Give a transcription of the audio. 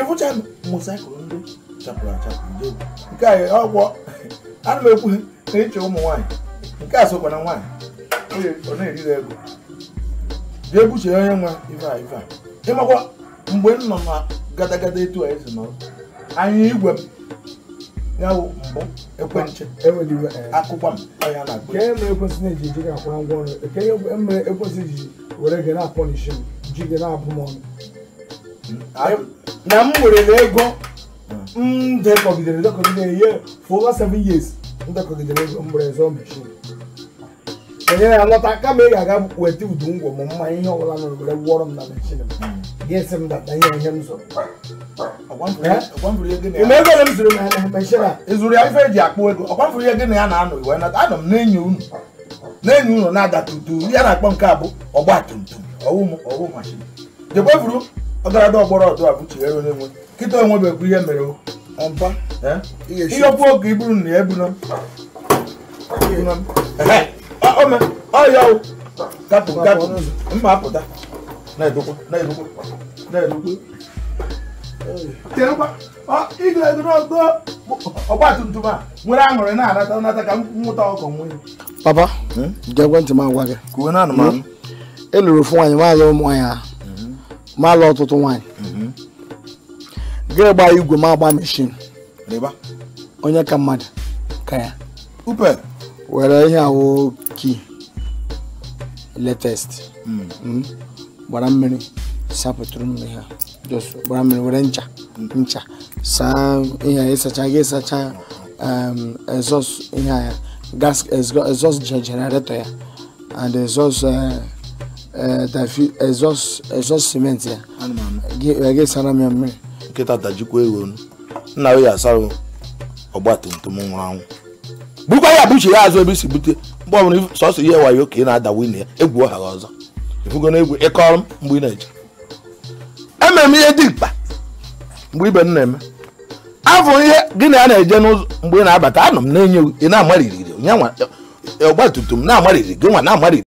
ịfụcha mosaikụl ndị chapụrụ achapụ nje nke a ọgwọ ana m ekwu na ịchọ ụmụ nwaanyị nke a sokwa na nwaanyị ọ na ego jee buchie onye nwa ife a ife a ịmakwa mgbe m nọ na gadagada etu a esi nọrọ anya igwe m ya mbụ ekwentị eh, akụkwa m ọnya na-akpọ na ngwa ọrụ were m na m werere ego m dekọgidere dekọgidere ye for over seven years m dekọgidere ego m were zụọ meshin onye ya lọta kama ị ga-aga weta udu ngwọ ma mmanya ihe ọbụla nụrụ were gwọrọ m na meshin m ga-esi m data ihe ihe m zụrụ ime ego ole m zụrụ na ya meshin ịzụrụ ya ife eji akpụ ego ọkwamfuru ihe gị na ya na-anọ iwe anọ m n'enyi unu n'enyi unu na-ada tutu ya na-akpọ nke a bụ ọgba tum tum ọwụ mashin jekwefuru dị ọgbọrọ ọdụ abụchiere onye nwe nkịta onwebekwa ihe mere ihe okwu oge iburu na ebuna ọya gapụ gapụ mma apụta na-edokwa na-edokwa na-edokwa ọgba tum tum a nwere aṅụrị na-anata ka papa hmm? m agwa gị ofu nwaanyị nwaanyị ụmụ nwaanyị ma alụ ọtụtụ nwaanyị gịnị gbaa igwe ma agba meshin onye ka mmadụ ka ya were ihe ahụ ki latest mm. mm. gbara mmiri sapụtụrụ mmiri ha gbara mmiri were ncha mm. ncha saa ihe a ịsacha gị ịsacha um, exhaust ihe ya gas exhaust generator ya and exhaust uh, Eh, dafi exhaust cement ya wee gị sara m ya mmiri nkịta tajikwa ego nna ya asara ọgba tum tum nwụrụ anwụ bukwa ya buchi ya azụ ebe isi bute mgbe ọbụla sọsọ ihe wayo ka ị na-ada wine ya egwu ọha ọzọ ifugo na egwu ịkọrọ m mgbe ị na-eje emere m ihe dị mkpa mgbe ibe m na-eme afọ ihe gị na ya na-eje n'ụzọ mgbe ị na-abata anọ m na-enye ị na-amariri ọgba tum tum na-amariri gị nwa na-amariri